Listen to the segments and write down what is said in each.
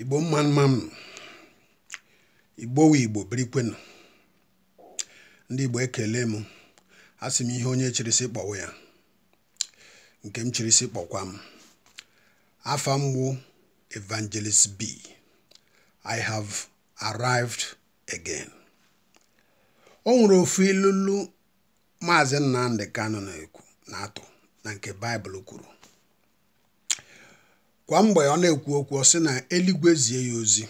igbo mma m igbo wu igbo ndị igbo ekele m asị m ihe onye chirisi kpọwa ya nke m chirisi kpọkwa m afa mgbu evangelist b i have arrived again o nwere ofu ilulu maazị nnamdị kanụ na-ekwu na-atụ na nke baịbụl kwuru kwa mgbe ọ na-ekwu okwu ọ sị na eluigwe zie ya ozi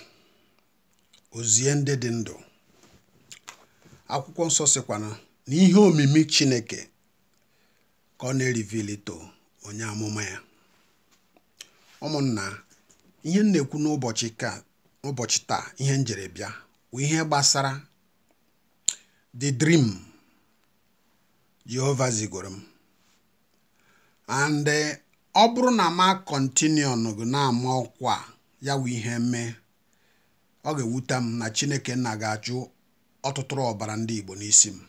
ozie ndị dị ndụ akwụkwọ nsọ sịkwana na ihe omimi chineke ka ọ na-erivilito onye amụma ya ụmụnna ihe m na-ekwu n'ụbọchị ka ụbọchị taa ihe njere bịa bụ ihe gbasara the dream Jehova zigoro m and ọ bụrụ na kọntiniọnụ ga na-ama ọkwa ya wụ ihe mee ọ ga-ewute m na chineke nna ga-achụ ọtụtụrụ ọbara ndị igbo n'isi m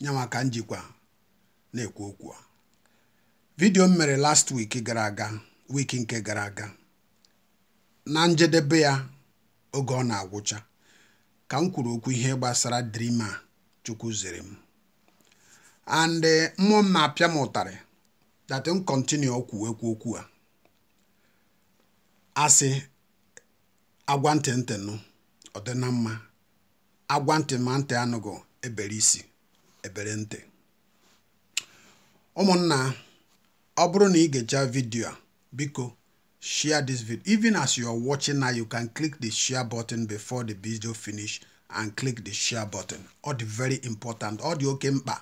nyanwa ka njikwa na-ekwu okwu vidio m mere last week gara aga wiki nke gara aga na njedebe ya oge ọ na-agwụcha ka m kwuru okwu ihe gbasara drima chukwu zere m and mmụọ m na-apịa m ụtarị that m continue okwu ekwu okwu a asị agwa ntị ntị nụ ọ dị mma agwa ntị ma ntị anụgụ ebere isi ebere ntị ụmụnna ọ bụrụ na ị ga eja vidio a biko share this video even as you are watching now you can click the share button before the video finish and click the share button ọ dị very important ọ dị oke mkpa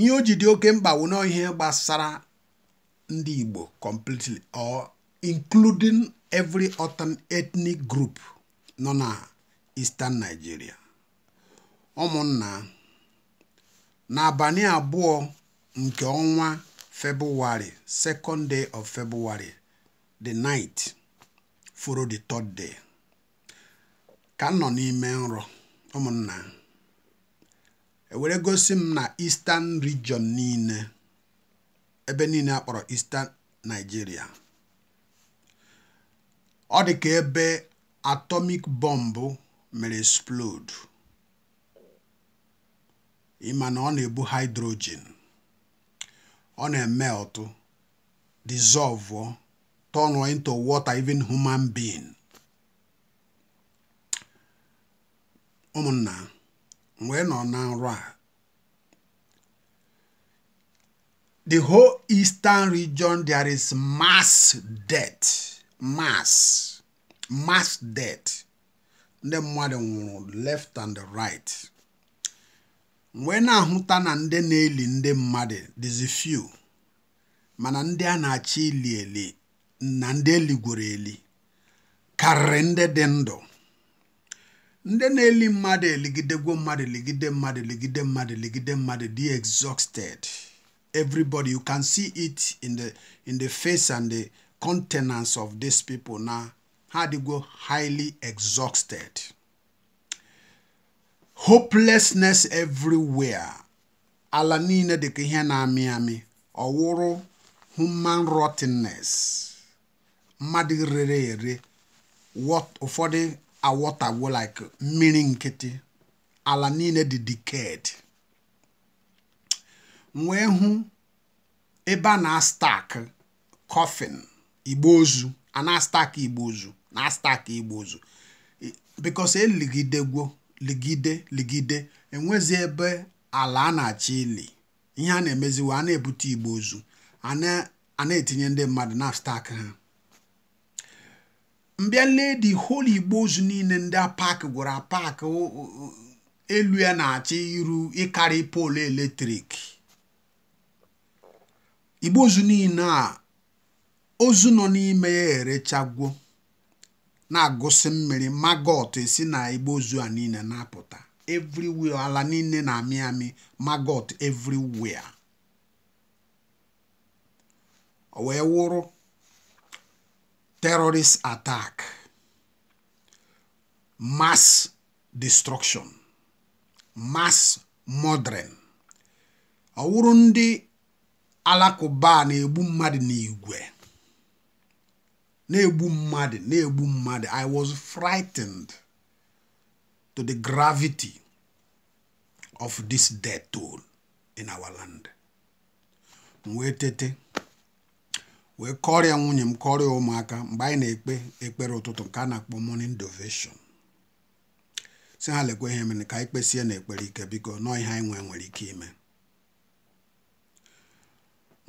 ihe o ji dị oke mkpa wụ gbasara ndị Igbo completely or including every other ethnic group nọ na Eastern Nigeria ụmụnna n'abalị abụọ nke ọnwa February second day of February the night follow the third day ka nọ n'ime nrọ ụmụnna ewere gosi m na Eastern region niile ebe niile a kpọrọ Eastern Nigeria ọ dị ka ebe atomic bomb mere explode ịma na ọ na-ebu hydrogen ọ na-emeltụ dissolve turn into water even human being ụmụnna mgbe ị nọ na nrọ a the whole eastern region there is mass death mass mass death ndị mmadụ nwụrụ left and right mgbe na-ahụta na ndị na-eli ndị mmadụ dịzi few mana ndị a na-achọ ili eli na ndị gwere eli karịrị ndị dị ndụ ndị na-eli mmadụ eligidegwo mmadụ eligide mmadụ eligide mmadụ eligide mmadụ dị exhausted everybody you can see it in the in the face and the countenance of these people na ha adịgo highly exhausted hopelessness everywhere ala niile dịka ihe na-amị amị ọwụrụ human rottenness mmadụ rere ere ụfọdụ awọtagwo like mmiri nkịtị ala niile dị decayed wee hụ ebe a na-astak kọfịn igbe ozu ana astak igbe ozu na-astak igbo ozu bikos eligidegwo ligide ligide enwezi ebe ala a na achị ili ihe a na-emeziwa a na-ebute igbe ozu ana etinye ndị mmadụ na stak ha mbịa lee di holi igbo ozu niile ndị apak gwara apak elu ya na-achọ iru ịkarị poolu eletrik igbo ozu niile a ozu nọ n'ime ya erechagwo na-agụsị mmiri magot si na igbo ozu a niile na-apụta ala niile na amị amị magot everywhere o wee wụrụ terrorist attack, mass destruction, mass murdering. ọ wụrụ ndị alakụba na-egbu mmadụ n'igwe na-egbu mmadụ na-egbu mmadụ i was frightened to the gravity of this death toll in our land wee tete wee kọrịa nwunye m kọrịa ụmụaka mgbe anyị na-ekpe ekpere ụtụtụ nke a na-akpọ morning devotion si ha lekwa ihe mere ka anyị kpesie na ekpere ike biko nọọ ihe anyị nwee nwere ike ime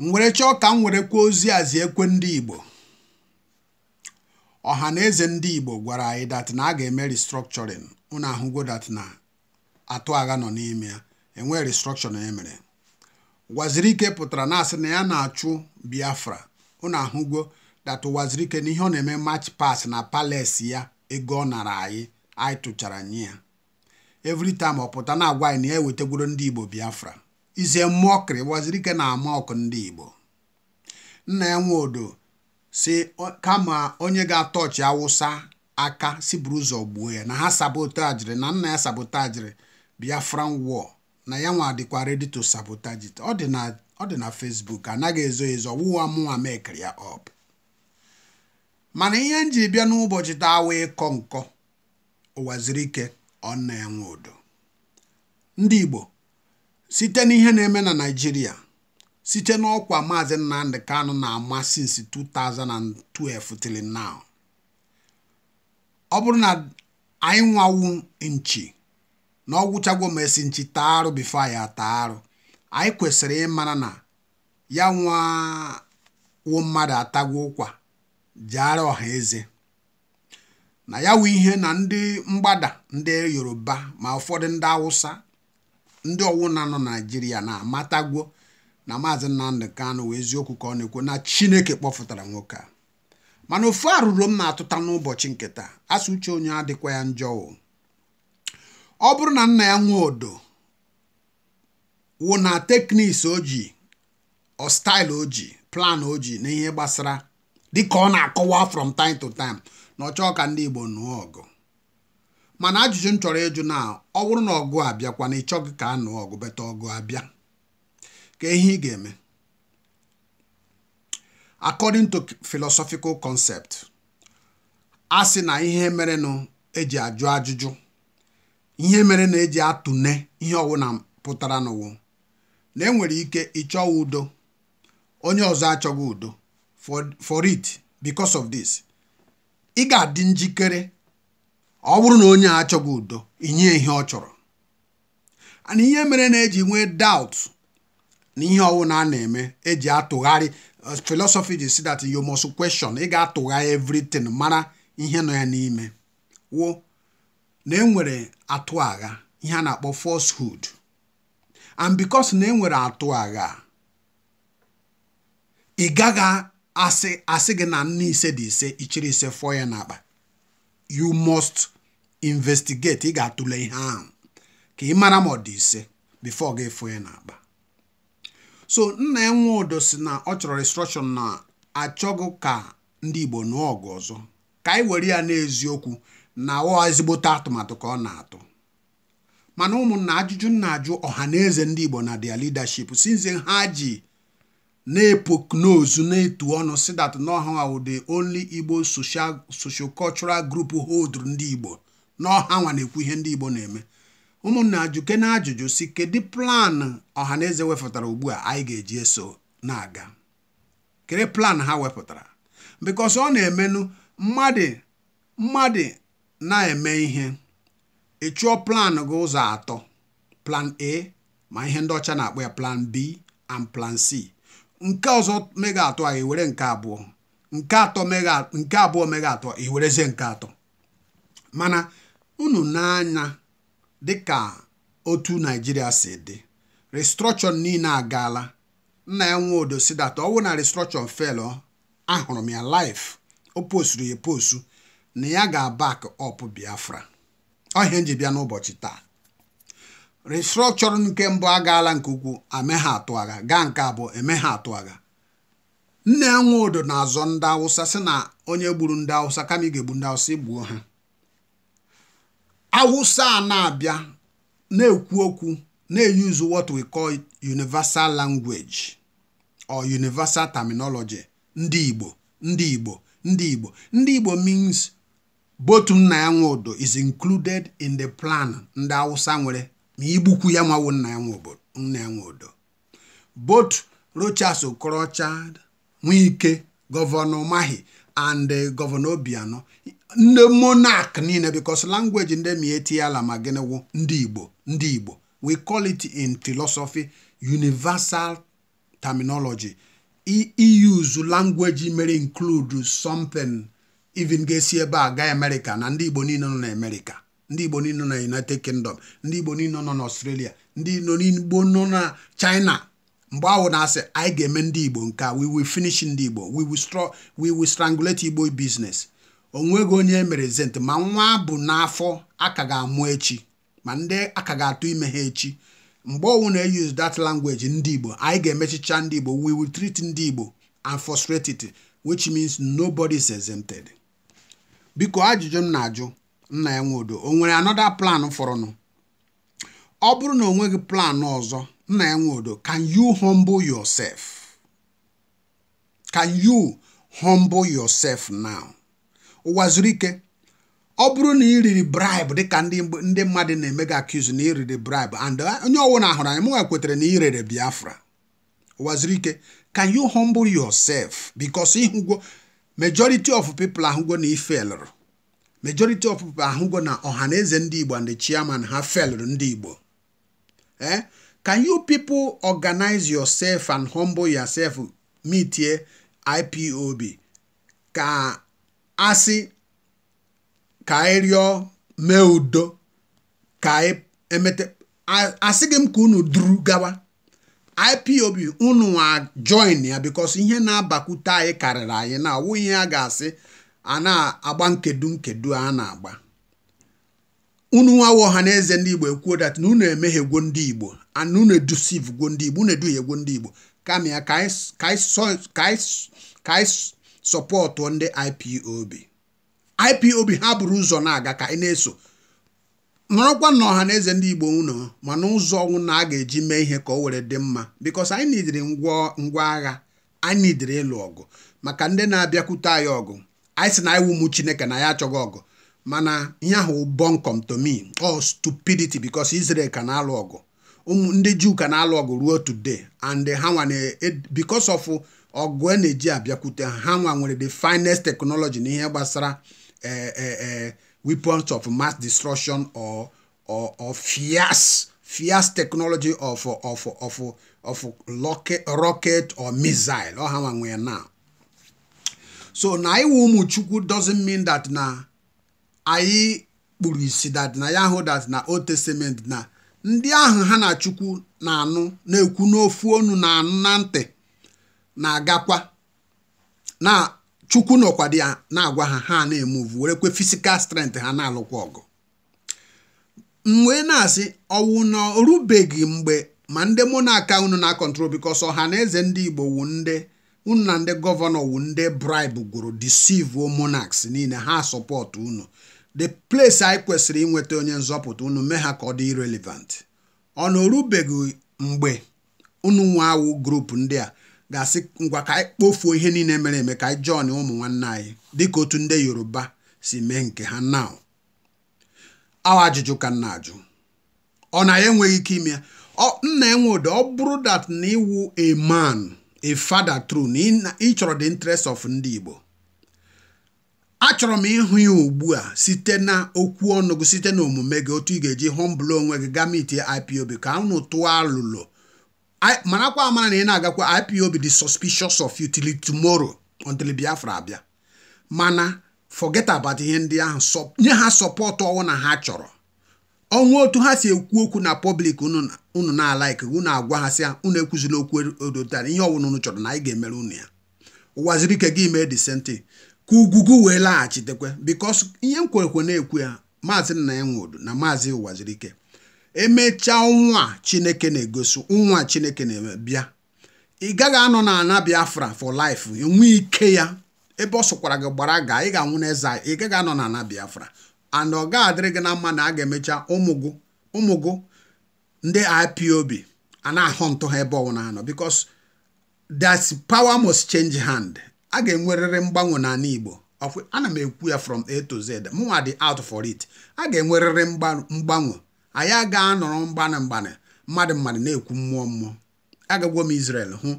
m were chọọ ka m were kwuo ozi azi ekwe ndị Igbo ọha na eze ndị Igbo gwara anyị dat na a ga-eme restructuring ụnụ ahụgo dat na atụ agha nọ n'ime ya enwee restructuring emere waziri ike pụtara na asị na ya na-achụ Biafra unu ahụgo that na ihe ọ na-eme mach pass na Palace ya ego ọ nara anyị anyị tụchara nye ya every ọ pụta na-agwa anyị na ya ewetagworo ndị Igbo Biafra izie mmụọ kịrị wazirike na-ama ọkụ ndị Igbo nna ya nwe odo si kama onye ga-atọchi awụsa aka si buru ụzọ gbuo ya na ha sabotajiri na nna ya sabotajiri Biafran war na ya nwa dịkwa ready to ọ dị na ọ dị na Facebook anaghị ezo ezo wụwa mụnwa mekiri ya ọp mana ihe m ji bịa n'ụbọchị taa awa ịkọ nkọ ụwaziri ike ọ na-enwe ụdọ. ndị Igbo site n'ihe na-eme na Naịjirịa site n'ọkwa maazị Nnamdị Kanụ na-ama since 2012 till now ọ bụrụ na anyị nwawu nchi na ọ gwụchagwo mesi nchi taa arụ bifo ya taa arụ anyị kwesịrị ịmara na ya nwa wụ mmadụ atagwo ụkwa jeara ọha eze na ya wụ ihe na ndị mgbada ndị yoruba ma ụfọdụ ndị awụsa ndị ọwụna nọ naijiria na-amatagwo na maazị nnamdị kanụ wee eziokwu ka ọ na-ekwu na chineke kpọfụtara nwoke a mana ofu arụrụ m na-atụta n'ụbọchị nketa taa asụ uche onye adịkwa ya njọ ọ bụrụ na nna ya nwee odo wụ na teknis oji ọstail oji plan oji na ihe gbasara dịka ọ na-akọwa from time to time na ọchọ ka ndị Igbo nụọ ọgụ mana ajụjụ m chọrọ ịjụ na ọ bụrụ na ọgụ abịakwa na ịchọ gị ka a nụọ ọgụ beta ọgụ abịa ka ihe ị ga-eme according to philosophical concept a sị na ihe mere na eji ajụ ajụjụ ihe mere na eji atụne ihe ọwụna pụtara n'ụwa na enwere ike ịchọwa udo onye ọzọ achọghị udo for it because of this ị ga-adị njikere ọ bụrụ na onye achọghị udo inye ihe ọ chọrọ ana ihe mere na-eji nwee doubt na ihe ọwụna a na-eme eji atụgharị uh, philosophy ji si that you must question ị ga-atụgharị everything mara ihe nọ ya n'ime wo na enwere atụ agha ihe a na-akpọ hood. and because na enwere atụ agha ị gaghị asị asị gị na nna ise dị ise ichiri ise fọọ ya n'akpa you must investigate ị ga-atụle ihe ahụ ka ị mara ma ọ dị ise before gị fọọ ya n'akpa so nna ya nwe si na ọ chọrọ instruction na achọghị ka ndị Igbo nụọ ọgụ ọzọ ka anyị were ya n'eziokwu na ọ ezigbote atụmatụ ka ọ na-atụ mana ụmụnna ajụjụ nna ajụ ọha na eze ndị Igbo na their leadership since ha ji na-epoknozu na-etu ọnụ si that n'ọha ụdị onli only Igbo socio-cultural group hold ndị Igbo n'ọha nwa na-ekwu ihe ndị Igbo na-eme ụmụnna ajụke na ajụjụ si kedu plan ọha na eze wepụtara ugbu a anyị ga-eji eso na-aga kedu plan ha wepụtara because ọ na-emenụ mmadụ mmadụ na-eme ihe ị chụọ plan gị ụzọ atọ plan A ma ihe ndị ọcha na-akpọ ya plan B and plan C nke ọzọ mega atọ a iwere nke abụọ nke atọ mega nke abụọ mega atọ nke atọ mana unu n'anya dịka otu naijiria si dị restrọchọn niile agaala nna ya nwe odo si data ọwụ na restrọchọn felọ ahụrụ m ya laif o posturu ya postu na ya ga-abak ọp biafra ọhịa nji e bịa n'ụbọchị taa restructuring nke mbụ agaala nke ukwuu ame ha atụ agha gaa nke abụọ eme ha atụ agha nne nwe na-azọ ndị awụsa sị na onye gburu ndị awụsa kama ga-egbu ndị awụsa igbuo ha awụsa a na-abịa na-ekwu okwu na-eyuzu what we call universal language or universal terminology ndị igbo ndị igbo ndị igbo ndị igbo means Botum nna ya nwe is included in the plan ndị hausa nwere ma igbukwu ya nwawo nna ya nwe odo rochers Rochas Okorocha Nwike gọvanọ Mahi and eh, gọvanọ Obianọ ndị monak niile because langweji ndị ma eti ma gịnịwụ ndị Igbo ndị Igbo we call it in philosophy universal terminology iuse e, e language mere include something even ga-esi ebe a gaa amerịka na ndị igbo niile nọ na ndị igbo niile nọ na united kingdom ndị igbo niile nọ na australia ndị igbo nọ na china mgbe ahụ na-asị anyị ga-eme ndị igbo nke we will finish ndị igbo we will stro we will strangulate igbo business onweghị onye emere zent ma nwa bụ n'afọ aka ga-amụ echi ma ndị aka ga-atụ ime ha echi mgbe ọnwụ na-eyuz that language ndị igbo anyị ga-emechicha ndị igbo we will treat ndị igbo and frustrate it which means nobody is exempted. biko ajụjụ m na-ajụ nna ya nwodo o nwere anoda plan fọrọnụ ọ bụrụ na o nweghị plan ọzọ nna ya nwodo can you humble yourself can you humble yourself now ụwa zuru ike ọ bụrụ na ị riri bribe dịka ndị mmadụ na emega gị na ị riri bribe and uh, onye ọwụ na ahụrụ anyị mụnwa kwetara na ị rere biafra ụwa zuru ike can you humble yourself because ịhụgwo majority of people ahụgo na ifelụrụ majority of people ahụgo na ọhaneze ndị igbo and the chairman ha felụrụ ndị igbo eh can you people organize yourself and humble yourself meet meetie ipob ka asị ka anyị rịọ mee udo ka anyị e, emete asị gị m ka unu duru gawa IPOB unu nwa join ya because ihe na-abakwute anyị karịrị anyị na ọwụ ihe a ga-asị a na-agba nkedu nkedu a na-agba unu nwa wụ na eze ndị Igbo ekwuo dat na unu emehiegwo ndị Igbo and unu gwo ndị Igbo unu gwo ndị Igbo kama ya ka anyị sọpọtụ ndị IPOB IPOB ha buru ụzọ na-aga ka anyị na-eso nọrọkwa na ọha na eze ndị igbo unu ma n'ụzọ ọnwụ na a ga-eji mee ihe ka o were dị mma bikos anyị nidiri ngwa agha anyị nidiri ịlụ ọgụ maka ndị na-abịakwute anyị ọgụ anyị si na anyị wumu chineke na ya achọghị ọgụ mana ihe ahụ bọnkom tomi ọ stupidity bikos Israel ka na-alụ ọgụ ndị juu ka na-alụ ọgụ ruo today and ha nwa bikos of ọgụ a e na-eji abịakwute ha nwa nwere the finest teknọlọji na ihe gbasara ee eh, eh, eh, weapons of mass destruction or or, or fierce fierce technology of of of of, rocket, rocket or missile ọ ha nwe now so na iwu ụmụ chukwu doesn't mean that na anyị kpuru isi that na ya hụ that na old testament na ndị ahụ ha na chukwu na-anụ na-ekwu n'ofu onu na anụ na ntị na-agakwa na chukwu nọkwado ya na-agwa ha ha na-emuvu werekwe fisikal strength ha na-alụkwa ọgụ m wee na-asị ọwụ na orubeghị mgbe ma ndị mụ na-aka unu na-akọntrol bikos ọha na eze ndị igbo wu ndị unu na ndị gọvanọ wu ndị brib gwuru deceive monarchs niile ha sọpọtụ unu the place anyị kwesịrị inweta onye nzọpụta unu mee ha ka ọ dị irrelevant ọ na orubeghị mgbe unu nwe awụ grupu ndị a ga-asị ngwa ka anyị kpofuo ihe niile mere eme ka anyị jọn ụmụ nwanne anyị dịka otu ndị yoruba si mee nke ha na awa ajụjụ ka nna ajụ ọ na ya enweghị ike ime ya nna enwe ụdị ọ bụrụ dat na iwu a man a father true na ịchọrọ the interest of ndị igbo achọrọ m ịhụ ya ugbu a site na okwu ọnụ site na omume gị otu ị ga-eji humble onwe gị gamiti IPOB ka anụ tụọ alụlụ marakwa amara na ị na-agakwa ipob dị suspicious of you till tomorrow until biafra abịa mana forget about ihe ndị ahụ nye ha sọpọt ọnwụ na ha chọrọ ọnwụ otu ha si ekwu okwu na pọblik unu na-alaik unu agwa ha sị unu ekwuzila okwu e, odotara ihe ọwụna unu chọrọ na anyị ga-emere unu ya ụwaziri ike gị mee disenti ka ugwugwu wee laghachitekwe bikos ihe m kwerekwe na-ekwu ya maazị nna ya nwụrụ na maazị ụwaziri ike emechaa nwa chineke na-egosi nwa chineke na-eme ị gaghị anọ na ana biafra for life enwe ike ya ebe ọ sụkwara gị gbara gaa ị ga-anwụ n'eze ị gaghị anọ na ana biafra and ọ ga-adịrị gị na mma na a ga-emecha ụmụ gụ ndị ipob a na-ahụ ntụ ha ebe ọnwụ na-anọ because that power must change hand a ga-enwerịrị mgbanwe n'ala igbo ana m ekwu ya from a to z mụnwa dị out for it a ga-enwerịrị mgbanwe anyị aga anọrọ mgbanị mgbanị mmadụ mmadụ na-ekwu mmụọ mmụọ agagwo m Israel hụ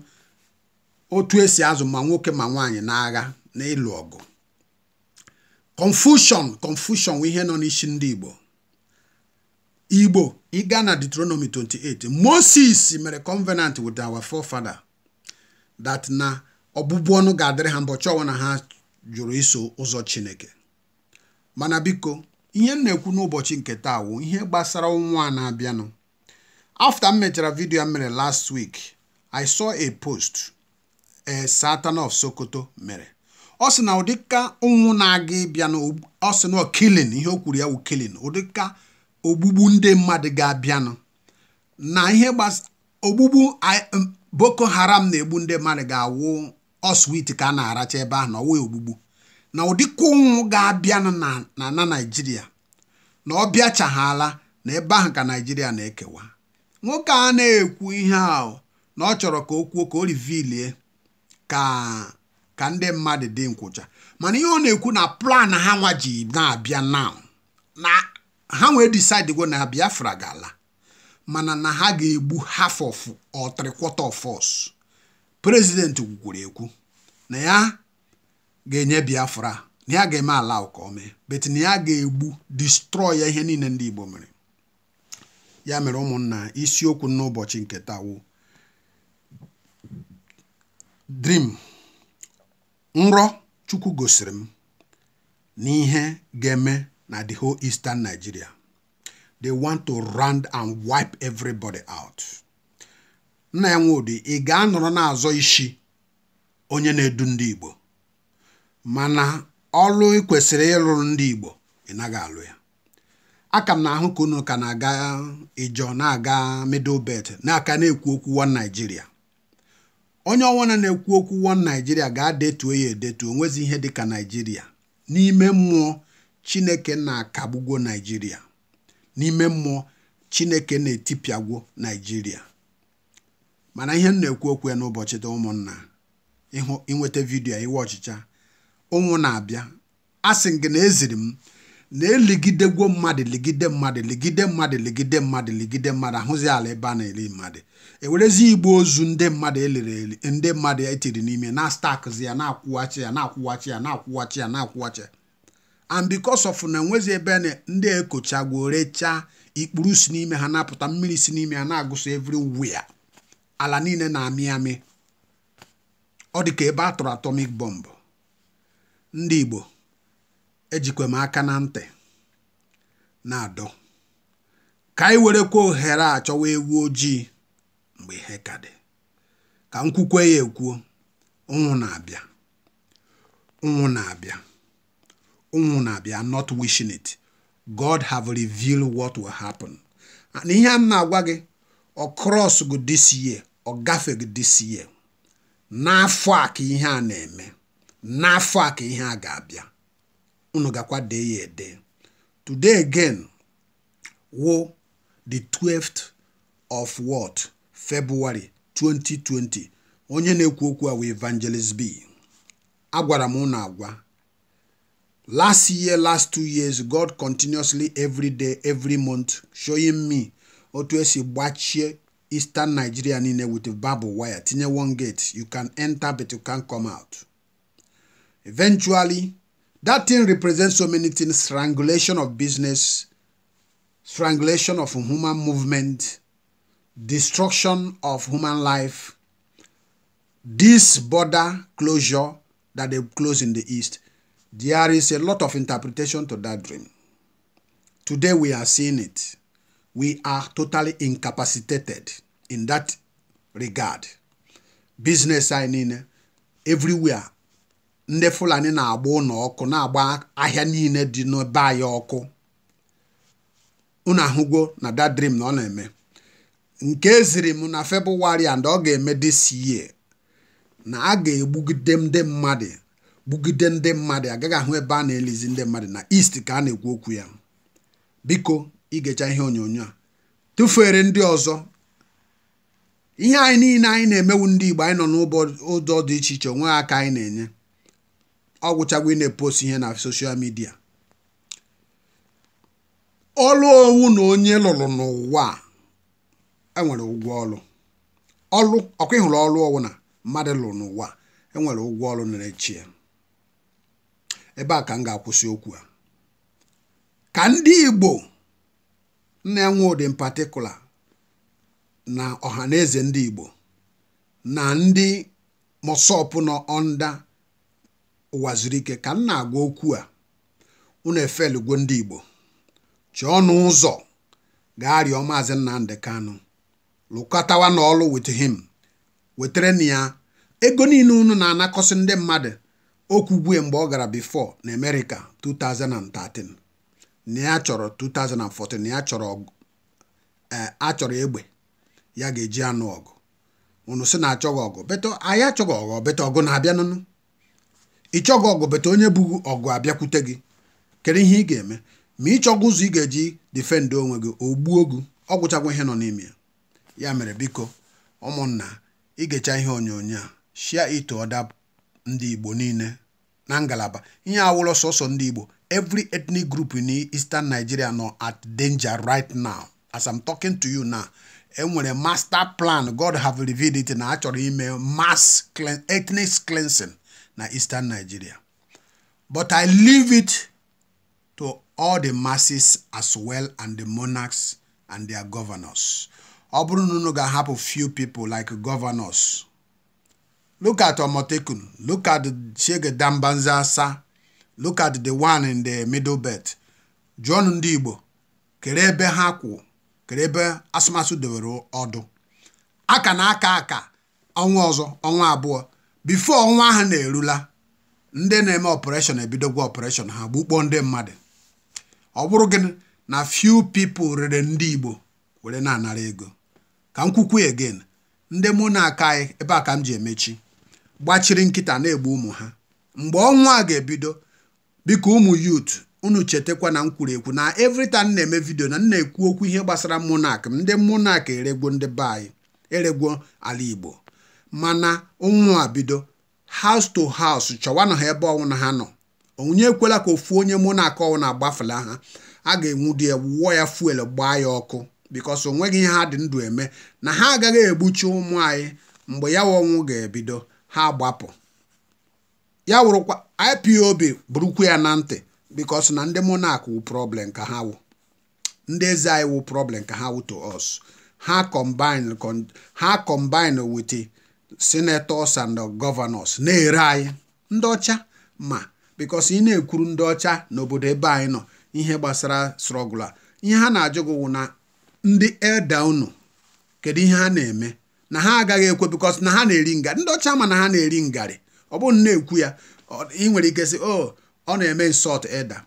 otu esi azụ ma nwoke ma nwaanyị na-agha ịlụ ọgụ confusion confusion ihe nọ n'isi ndị Igbo Igbo ịga na Deuteronomy 28 Moses mere covenant with our forefather that na ọbụbụ ọnụ ga-adịrị ha mbọchị ọnwa na ha jụrụ iso ụzọ Chineke mana biko ihe m na-ekwu n'ụbọchị nke taa wụ ihe gbasara a na-abịanụ after m mechara vidio a mere last week i saw a post e Satan of Sokoto mere ọ sị na ụdịka ụnwụ na-aga ịbịa ọ sị na killing ihe o kwuru ya wụ killing ụdịka ogbugbu ndị mmadụ ga-abịanụ na ihe ogbugbu um, Boko Haram na-egbu ndị mmadụ ga-awụ ọswit ka a na-aracha ebe ahụ na ọwụ ogbugbu na ụdịka ụnwụ ga abịa na na naijiria na ọ bịachaghala na ebe ahụ ka naijiria na-ekewa nwoke a na-ekwu ihe ahụ na ọ chọrọ ka o kwuo ka o rivilie ka ka ndị mmadụ dị nkwụcha mana ihe ọ na-ekwu na plan ha nwa ji na-abịa naụ na ha wee disidego na biafra ga-ala mana na ha ga-egbu half of or three quarter prezidenti gwukwuru ekwu na ya ga-enye Biafra na ya ga-eme ala ka ọ bet na ya ga-egbu distrọy ya ihe niile ndị Igbo mere ya mere ụmụnna isiokwu n'ụbọchị nke taa wụ dream nrọ Chukwu gosiri m na ihe ga-eme na the whole eastern Nigeria they want to round and wipe everybody out nna ya nwudi ị ga-anọrọ n'azọ isi onye na-edu ndị Igbo mana ọlụ ị kwesịrị ịlụ ndị Igbo ị naghị alụ ya aka m na-ahụ ka unu ka na-aga ịjọ na-aga middle naka na-aka na-ekwu okwu one Naijiria onye ọnwụna na-ekwu okwu one Naijiria ga-adetuo ya edetu onwezi ihe dịka Naijiria n'ime mmụọ Chineke na-akagbugo Naijiria n'ime mmụọ Chineke na-etipịagwo Naijiria mana ihe m na-ekwu okwu ya n'ụbọchị taa ụmụnna ịnweta vidiyo iwe ọchịcha ụnwụ na-abịa asị gị na eziri m na-eligidegwo mmadụ ligide mmadụ ligide mmadụ ligide mmadụ ligide mmadụ ahụzi ala ebe a na mmadụ ewerezi igbe ozu ndị mmadụ eliri eli ndị mmadụ etiri n'ime na stakzi ya na-akwụghachi ya na-akwụghachi ya na-akwụghachi ya na-akwụghachi ya and because of na enwezi ebe ndị ekochagwo rechaa ikpuru si n'ime ha na-apụta mmiri si n'ime ha na eviri wia ala niile na-amị amị ọ dị ka ebe a tụrụ atomic bomb ndị Igbo ejikwe m aka na ntị na-adọ ka anyị werekwa ohere a chọwa ewu ojii mgbe ihe ka dị ka m ya ekwuo ụnwụ na-abịa ụnwụ na-abịa ụnwụ na-abịa not wishing it God have revealed what will happen na ihe a na-agwa gị ọ krọs gị this year ọ gafeghị this year n'afọ a ka ihe a na-eme n'afọ a ka ihe a ga-abịa unu gakwa dee ya ede today again wo the 12th of what february 2020 onye na-ekwu okwu a wee evangelist b agwara m unu agwa last year last two years god continuously every day every month showing me otu esi gbachie eastern nigeria niile with barbed wire tinye one gate you can enter but you can't come out. Eventually, that thing represents so many things, strangulation of business, strangulation of human movement, destruction of human life, this border closure that they close in the east. There is a lot of interpretation to that dream. Today we are seeing it. We are totally incapacitated in that regard. Business signing everywhere ndị fulani na-agba ụlọ ọkụ na-agba ahịa niile dị n'ebe anyị ọkụ unu ahụgwo na dadrim na ọ na-eme nke ziri m na febụwarị and ọ ga-eme dị year na a ga-egbugide ndị mmadụ gbugide ndị mmadụ agaghị ahụ ebe a na-elizi ndị mmadụ na east ka a na-ekwu okwu ya biko igecha ihe onyonyo a tụfuere ndị ọzọ ihe anyị niile anyị na-emewu ndị Igbo anyị nọ ụdọ dị iche iche onwe aka anyị na-enye ọ ị na-epost ihe na soshal midia ọlụ owu na onye lụrụ n'ụwa enwere ụgwọ ọlụ ọlụ ọkwa ịhụrụ ọlụ ọwụ na mmadụ lụrụ n'ụwa enwere ụgwọ ọlụ na-echi ebe a ka m ga-akwụsị okwu a ka ndị Igbo na-enwe ụdị patikula na ọha na eze ndị Igbo na ndị mọsọpụ nọ ọnda ụwa zuru ike ka m na-agwa okwu a unu efelugo ndị Igbo chọọ ọnụ ụzọ gaa rịọ maazị Nnamdị Kanụ lụkọtawa n'ọlụ wit him wetara na ya ego niile unu na-anakọsị ndị mmadụ okwugwe mgbe ọ gara bifọ na America 2013 na ya chọrọ 2014 na ya chọrọ e, achọrọ egbe ya ga-eji anụ ọgụ unu sị na achọghị ọgụ beto anyị ọgụ beto ọgụ na-abịanụnụ ịchọghị ọgụ bete onye bụ ọgụ abịakwute gị kedu ihe ị ga-eme ma ịchọghị ụzọ ị ga-eji difendị onwe gị ogbuo gbuo gị ọ ihe nọ n'ime ya ya mere biko ụmụnna igecha ihe onyonyo a shia ito ọda ndị igbo niile na ngalaba ihe awụlọ sọsọ ndị igbo every ethnic group in eastern nigeria nọ at danger right now as i'm talking to you now enwere master plan god have revealed it na achọrọ ime mass ethnic cleansing na eastern Nigeria but I leave it to all the masses as well and the monarchs and their governors ọ bụrụ na unu ga-ahapụ few people like governors look at Omotekun look at Shege Dambanza look at the one in the middle belt jụọnụ ndị Igbo kere ebe ha kwụ kere ebe asụmasụ dewere ọdụ aka na aka aka ọnwa ọzọ ọnwa abụọ bifo ọnwa ahụ na-erula ndị na-eme ọpụreshọn ebidogwa ọpụreshọn ha gbukpọ ndị mmadụ ọ bụrụ gịnị na few pipo rere ndị Igbo were na-anara ego ka m kwukwu again ndị mụ na-aka anyị ebe a ka m ji emechi gbachiri nkịta na-egbu ụmụ ha mgbe ọnwa a ga-ebido biko ụmụ yut unu chetakwa na nkwuru ekwu na everytime na-eme vidio na m na-ekwu okwu ihe gbasara mụnak m ndị mụnak eregwo ndị be anyị eregwo ala Igbo mana ụnwụ a bido house to house chọwanụ ha ebe ọnwụ na ha nọ onye ekwela ka ofu onye mụ na ọnwụ na-agbafela ha a ga-enwudi ya wuo ya fuel gbaa ya ọkụ bikos o ihe ha dị ndụ eme na ha agaghị egbuchi ụmụ anyị mgbe ya ọnwụ ga-ebido ha gbapụ ya wụrụkwa IPOB bụrụkwa ya na ntị bikos na ndị monak wụ problem ka ha wụ ndị eze anyị wụ problem ka ha wụ to us ha combine ha combine with senators and gọvanọs na-ere anyị ndị ọcha ma bikos ị na-ekwuru ndị ọcha n'obodo ebe anyị nọ ihe gbasara srọgụla a ihe ha na-ajụ gị wụ na ndị elda unu kedu ihe ha na-eme na ha agaghị ekwe bikos na ha na-eri ngarị ndị ọcha ma na ha na-eri ngarị ọ bụrụ na ekwu ya ị nwere ike sị oh, ọ na-eme nsọt elda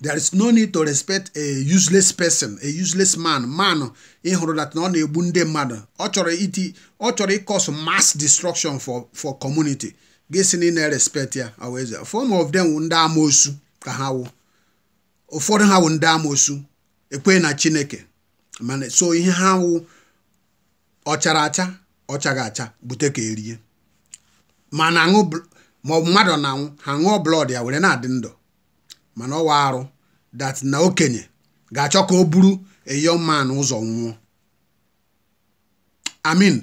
there is no need to respect a useless person a useless man man ịhụrụ hụrụ that na ọ na-egbu ndị mmadụ ọ chọrọ iti ọ chọrọ ịkọs mass destruction for for community gịsi na ị na-erespect ya aweze of them ndị ka ha wụ ụfọdụ ha wụ ndị amoosu ekwe na chineke mana so ihe ha wụ ọchara acha ọchaghị acha bute ka erie ma ma mmadụ na-anwụ ha ṅụọ blọd ya were na-adị ndụ mana ọwa arụ dat na okenye ga-achọ ka o buru a young man ụzọ nwụọ amin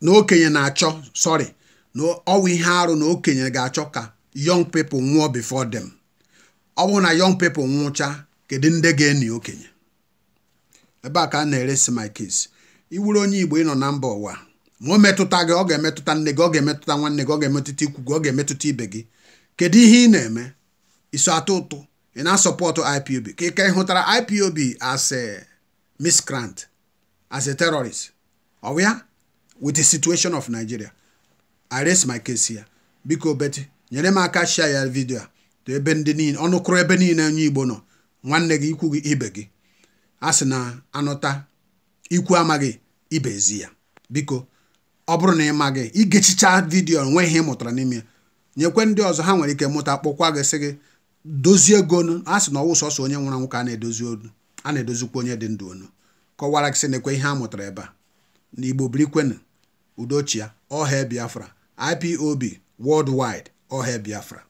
na okenye na-achọ sorry na ọwa ihe arụ na okenye ga-achọ ka young people nwụọ before them ọ bụrụ na young people nwụcha kedu ndị ga-eni okenye ebe a ka a na-eresi my case iwuru onye igbo ịnọ na mba ụwa ma o metụta gị ọ ga-emetụta nne gị ọ ga-emetụta nwanne gị ọ ga-emetụta ikwu gị ọ ga-emetụta ibe gị kedu ihe ị na-eme iso atọ ụtụ ị na-asọpọtụ IPOB ka ị ka hụtara IPOB as a miscreant as a terrorist ọ with the situation of Nigeria I raise my case here biko beti nyere m aka share ya vidio a ebe ndị niile ọnụkụrụ ebe niile onye Igbo nọ nwanne gị ikwu gị ibe gị a na anụta ikwu amaghị ibe ezi ya biko ọ bụrụ na ị maghị igechicha vidio nweghị ihe ị mụtara n'ime ya nyekwe ndị ọzọ ha nwere ike mụta kpọkwa gị sị gị dozie gonu a sị na ọwụ sọsọ onye nwụrụ anwụ ka a na-edozi onu a na-edozikwa onye dị ndụ onu kọwara gị sị na ekwe ihe a mụtara ebe a na igbo birikwenu udochia ọha biafra ipob worldwide ọha biafra